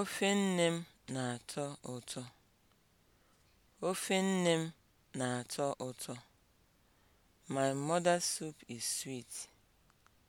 Ofe nne m na-atọ ụtọ. Ofe nne m na-atọ ụtọ. My mother's soup is sweet.